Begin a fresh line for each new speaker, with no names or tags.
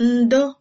ndo